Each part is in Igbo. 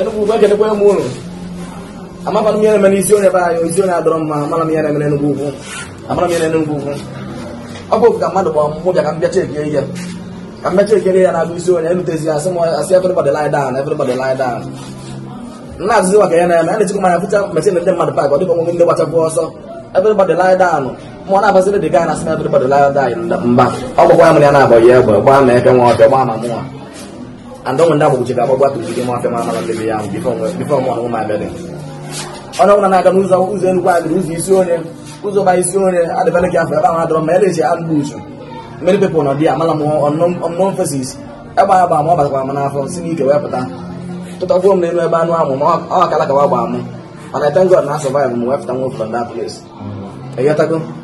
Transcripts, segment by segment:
Enugu ugwu ekedekwa m unu amakwana m ihe na-eme n'isi onye be anyị isi onye adọrọ mma amara m ihe na-eme n'Enugu ugwu amara m ihe na-Enugu ugwu ọ bụ ka mmadụ ka m bịacha ihe ya na-abụ isi onye ya m asị everybody lie down everybody lie down na-azụzi ya na-eme a na-echekwa manya fụcha ndị mmadụ pak ọ dịka ndị gbachakwu ọsọ everybody lie down mụ na-abaziri dị gaa mba ọ gbakwa ya ya na-abọ ya egbe gbaa ma and onwe agbụ ji gagbagba ugide maf ma malabebe ya onye ọbụla na-aga n'ụzọ ụzọ enugwu adịrị ụzọ isi onye ụzọ ba isi onye adịbala gị afọ ebe ahụ adọrọ ma ya na-eji adịgbu uchu mmeri pepụl nọ dị ya mala m ọnụnọ fesis ịgba ya gba ma ọ m si n'ike wepụta pụta tụtagbuo m n'elu ebe anụ ahụ ma ọ akala kawa gbaa m mana tengod na m wee pụta nwa ofụlọ ndị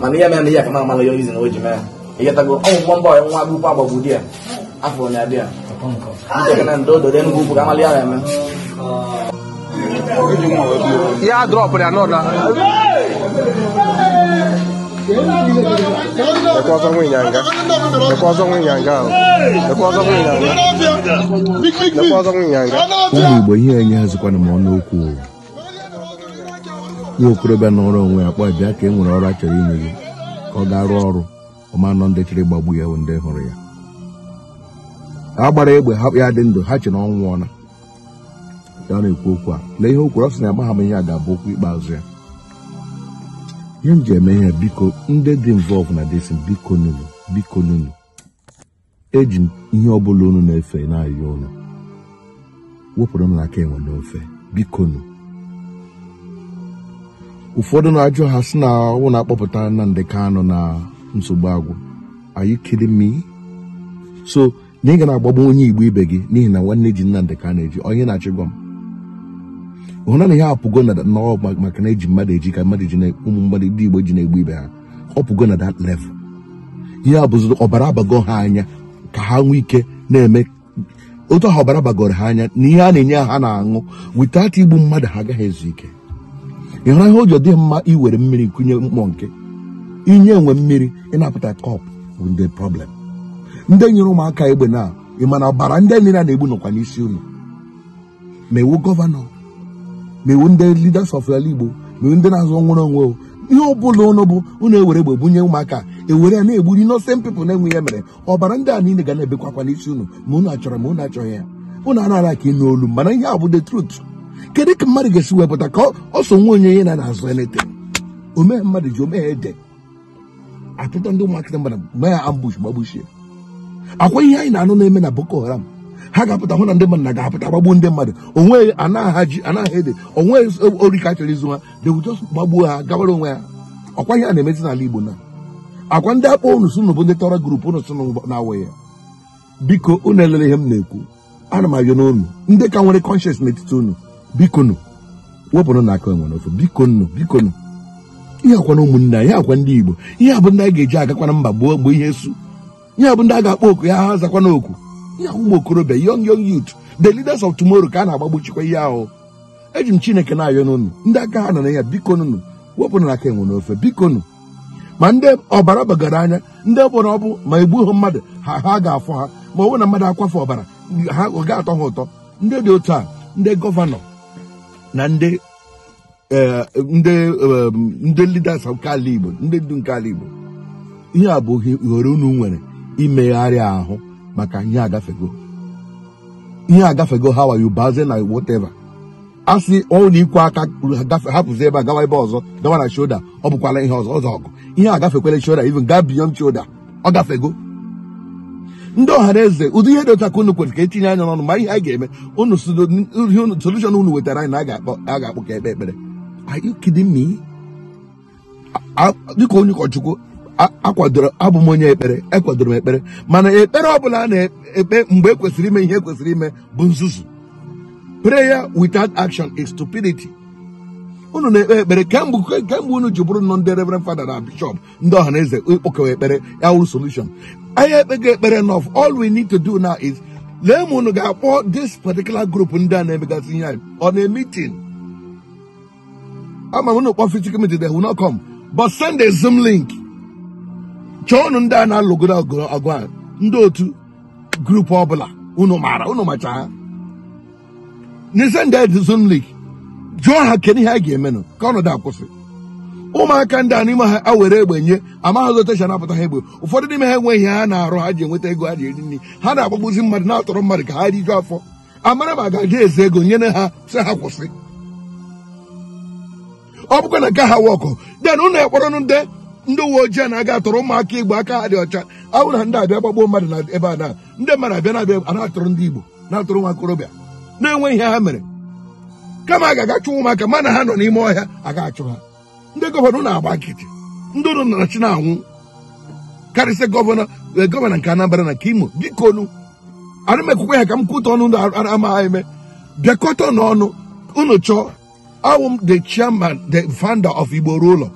mana ihe mere ihe ka mama ya izin o ji mee ihe tago ọnwụ nwa mba nwa akwụkwọ agbagbu di ya afọ na abịa nke na ndị ododo enugwu ukwu ka amali ya na-eme ya drọpụrụ ya n'ụda Ekwe ọzọ nwe ịnyanga. Ekwe ọzọ nwe ịnyanga ahụ. Ekwe ọzọ nwe ịnyanga. Ekwe ọzọ nwe ịnyanga. Ụmụ Igbo ihe enye ha zikwana m ọnụ okwu. nwa okorobịa na ọrụ onwe ya kpọọ bịa ka e nwere ọrụ a chọrọ gị ka ọ ga rụọ ọrụ ọma nọ ndị chịrị gbagbu ya ndị hụrụ ya a gbara egbe hapụ ya dị ndụ ha che na ọ ya na-ekwu okwu a lee ihe okwu kwuru ọ sị na agba m ihe a ga-abụ okwu ikpeazụ ya ihe m ji eme ihe biko ndị dị involve na desi biko nunu biko nunu eji ihe ọ bụla unu na-efe n'ahịa ụlọ wepụrụ m n'aka enwe n'ofe bikonu ụfọdụ na-ajụ ha sị na ọnwụ na-akpọpụta ndị Kanụ na nsogbu agwụ are you kidding me so na ị ga na-agbagbu onye Igbo ibe gị n'ihi na nwanne ji ndị Kanụ eji onye na-achị gwa m hụ na na ya apụgo na n'ọwa maka na eji mmadụ eji ka mmadụ ji ụmụ mmadụ ndị Igbo ji na-egbu ibe ha ọ pụgo na dat level ihe a bụzi ọbara abago ha anya ka ha nwee ike na-eme otu ọbara bagoro ha anya na ihe a na-enye ha na-aṅụ without igbu mmadụ ha agaghị ezu ike ịhụrụ ihe ụjọ dị mma iwere mmiri kụnye mkpọ nke inye enwe mmiri ịnapụta kọp bụ ndị problem ndị nyere ụmụaka egbe na ịmana ọbara ndị niile na-egbu nọkwa n'isi unu ma iwu gọvanọ ma iwu ndị leaders of ala Igbo ma iwu ndị na-azụ nwere onwe ihe ọ bụla ụnụ bụ ụnụ ewere egbe bunye ụmụaka ewere ya na-egburi innocent people na-enwe ya mere ọbara ndị a niile ga na-ebekwakwa n'isi unu ma ụnụ achọrọ ma ụnụ achọghị ya unu anaghị ka ịnụ olu mana ihe a bụ the truth kedu ka mmadụ ga-esi wepụta ka ọ so nwa onye onye na na-azụ elete omee mmadụ ji omee ede achọta ndị ụmụakịta mmadụ mee ya ambush gbagbuchie akwa ihe anyị na-anụ na-eme na Boko Haram ha ga-apụta hụ na ndị mmadụ na ga-apụta gbagbuo ndị mmadụ onweghị anaghị ede onweghị orika chọrọ izu ha dewujo gbagbuo ha gawara onwe ha ọkwa ihe a na-emezi n'ala Igbo na akwa ndị akpọ unu sụ bụ ndị tọrọ gurupu unu sụ na-awụ ya biko unu elele ihe m na-ekwu ana m ayọ n'unu ndị ka nwere kọnshens n'etiti unu bikonu wepụrụ na aka enwere ofe bikonu bikonu ihe akwa na ụmụnne anyị akwa ndị igbo ihe abụ ndị a ga-eji agakwana mba gbuo gboo ihe su ihe abụ ndị a ga-akpọ oku ya ha zakwana oku ihe ahụ ụmụ okorobịa young young youth the leaders of tomorrow ka a na-agbagbuchikwa ihe ahụ eji m chineke na-ayọ n'ụnụ ndị aka ha nọ na ya bikonụnụ wepụrụ na aka enwere ofe bikonụ ma ndị ọbara bagara anya ndị ọbụla ọ bụ ma egbughị mmadụ ha ha ga-afọ ha ma ọ bụrụ na mmadụ akwafe ọbara ha ga-atọ ha ụtọ ndị dị otu a ndị gọvanọ na eh, ndị eh, ndị leaders nke ala Igbo ndị ndu nke ala Igbo ihe a bụ ohere unu nwere imegharị ahụ maka ihe agafego ihe agafego ha wayo baze na whatever a sị ọnwụ ikwe aka hapụzi ebe a gawa ebe ọzọ gawa na shoda ọ bụkwala ihe ọzọ ọzọ ọgụ ihe agafekwala shoda even gaa beyond shoda ọ gafego ndị ọhara eze ụdị ihe dị otu aka unu ka etinye anya n'ọnụ ma ihe a ga-eme unu solushon unu wetara anyị na a ga-akpọ ka ekpe ekpere dịka onye ụkọchukwu akwadoro abụ m onye ekpere ekwadoro m ekpere mana ekpere ọ bụla a na-ekpe mgbe ekwesịrị ime ihe ekwesịrị ime bụ nzuzu prayer without action is stupidity unu na-ekpe ekpere eh, kemgbe eh, kemgbe unu ji bụrụ nọ ndị reverend fada na bishọp ndị ọha na eze ikpokewa eh, ekpere ya wụrụ solution anyị ekpego ekpere nọf all we need to do now is lee ma unu ga-akpọ this particular group ndị a na-emegasị ihe anyị on a meeting ama m unu kpọ physical meeting they will not come but send a zoom link chọọ unu ndị a na-alụgoro ọgụ a ndị otu grup ọbụla unu maara unu macha ha n'ise ndị zoom link jụọ ha kedu ihe a ga-eme nụ ka ọnọdụ akwụsị ụmụaka ndị a n'ime ha a were egbe nye amaghị otecha napụta ha egbe ụfọdụ n'ime ha enweghị ha na-arụ ha ji enweta ego ha ji eri nri ha na-agbagbuzi mmadụ na-atọrọ mmadụ ka ha jụọ afọ amara ma ga aga eze ego nyere ha sị ha kwụsị ọ bụkwa na nke ha wọkụ den ụnụ ekpọrọ ndị ndị uwe ojii na-aga atọrọ ụmụaka igbo aka ha dị ọcha ahụ na ndị abịa gbagbuo mmadụ na ebe a na ndị mmadụ abịa na-abịa na-atụrụ ndị igbo na-atụrụ nwa okorobịa na-enweghị ihe ha mere kama a ga-agachụ ụmụaka mana ha nọ n'ime ọhịa aga achụ ha ndị gọvanọ na-agba nkịtị ndị ụlọ narachi na-anwụ karịsịa gọvanọ e, gọvanọ nke Anambra na nke Imo biko nu m ekwukwe ha ka m kwụta ọnụ ndụ amaghị eme bịakọta n'ọnụ unu chọọ awụ m the chairman the founder of Igbo ụlọ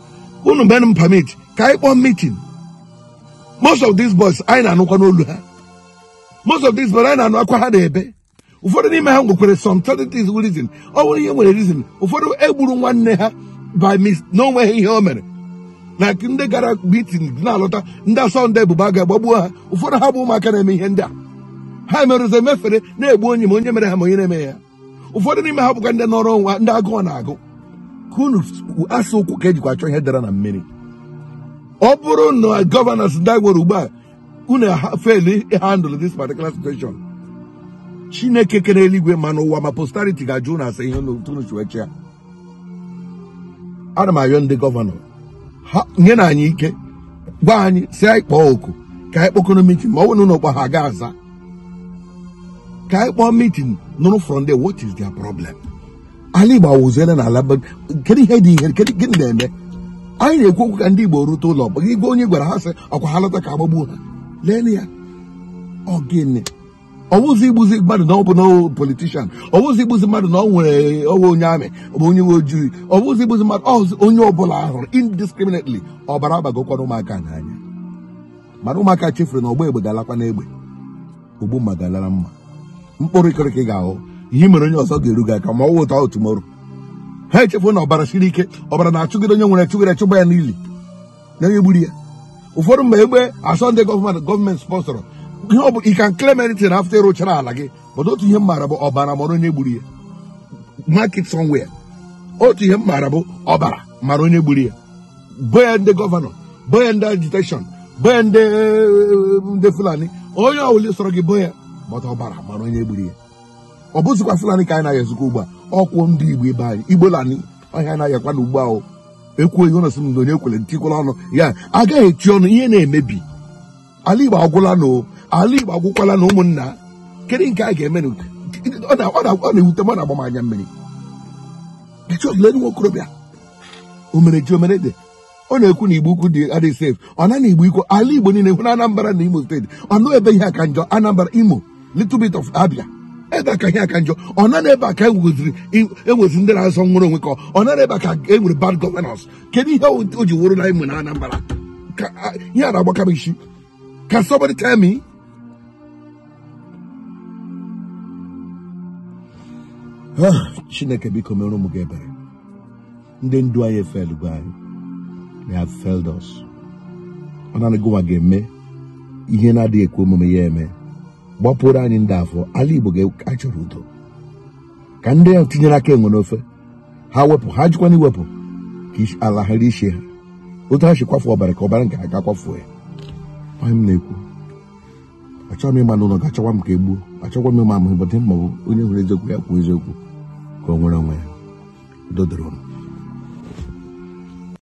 unu mere m permit ka anyị kpọọ meeting most of these boys anyị na-anụkwa n'olu ha most of these boys anyị na-anụ akwa ha na-ebe ụfọdụ n'ime ha nwekwere some certain reason ọ bụrụ ihe nwere rizin ụfọdụ egburu nwanne ha by mis n'onwe ha ihe o mere na ndị gara bitin na-alọta ndị asọnde bụba ga-agbagbuo ha ụfọdụ ha bụ ụmụaka na-eme ihe ndị a ha merụzi emefere na-egbu onye ma onye mere ha ma onye na-eme ya ụfọdụ n'ime ha bụkwa ndị nọrọ nwa ndị agụọ na-agụ ka unu e ụkwụ ka ejikwa achọ ihe dara na mmiri ọ bụrụ na gọvanọ ndị gwere ugbu a unu feli handụl dis particular situation chineke kere eluigwe ma n'ụwa ma posterity ga-ajụ na asa ihe n'otunuchiwechi ya ana m ayọ ndị gọvanọ ha nye na anyị ike gwa anyị si anyị kpọọ oku ka anyị kpọkọrọ mitin ma ọ bụrụ na ụlọkpa ha ga aza ka anyị kpọọ mitin nụrụ from there what is their problem ala igbo awụziele na ala kedu ihe dị ihe gịnị na-eme anyị na-ekwu okwu ka ndị igbo rute ụlọ gwa onye gwara ha sị ọkwa ha lọta ka agbagbuo ha lee ya ọ gịnị ọwụzi igbuzi mmadụ na ọ na politishan ọwụzi igbuzi mmadụ na ọ nwere ọnwe onye amị bụ onye nwe ojii ọwụzi igbuzi mmadụ ọzụ onye ọbụla ahụrụ indiscriminately ọbara agbagokwana ụmụaka n'anya mana ụmụaka chefuru na ọgba egbe ga-alakwa n'egbe ogbu mma ga-alara mma mkpụrụ ịkịrịkị ga-ahụ ihe mere onye ọzọ ga-eru aka ma ọ wụta otumoro ha echefuru na ọbara siri ike ọbara na-achụgide onye nwere chụgide chụgba ya n'ili na onye gburu ya ụfọdụ mgbe egbe asọ ndị gọọmenti gọọmenti spọnsọrọ ihe ọ bụ ị ka claim anything after ịrụchara ala gị but otu ihe m maara bụ ọbara mara onye gburu ya market somewhere otu ihe m maara bụ ọbara mara onye gburu ya bo ya ndị gọvanọ bo ya ndị agitation bo ya ndị fulani onye ọbụla sọrọ gị bo ya but ọbara mara onye gburu ya ọ bụzikwa fulani ka anyị na-aya ezikwa ugbu a ọkwụ ndị igbo ibe anyị igbo lani ọhịa na-ayakwa na ugbu ahụ ekwughị ọnụ sị na onye kwele ntikwala ọnụ ya agaghị echi ọnụ ihe na-emebi ala igbo agwụla na ala Igbo agwụkwala na ụmụnna kedu nke a ga-eme ọ na-ewute m ọ na-agba m anya mmiri lee nwa okorobịa omereji omerede ọ na-ekwu na igbo ukwu dị adịghị sef ọ na igbo ikwu ala igbo niile hụ na anambra na imo steeti ọ nọ ebe ihe aka njọ anambra imo little bit of abia ebe aka ihe aka njọ ọ na ebe aka enwezi e, e ndị na-azọ nwụrụ onwe ka ọ na ebe aka e nwere bad governance kedu ihe o ji wụrụ na imo na anambra ihe a na-agbakarị isi ka somebody tell me Ah, chineke biko mere ụmụ gị ebere ndị ndu anyị efelugo anyị they have failed us ọ naanị ga-eme ihe na-adịghị ekwe omume ya eme gbapụrụ anyị ndị afọ ala igbo ga chọrọ udo ka ndị ya tinyere aka enwe n'ofe ha wepụ ha jikwana iwepụ ka ala ghara ishi ha otu ha si kwafu ọbara ka ọbara nke ha ga ya onye m na-ekwu achọghị m ịma n'ụlọ ga-achọkwa m ka e gbuo achọkwa m ịma ama ịbọdị mma onye hụrụ eziokwu ya kwuo eziokwu Comorangue do Drone.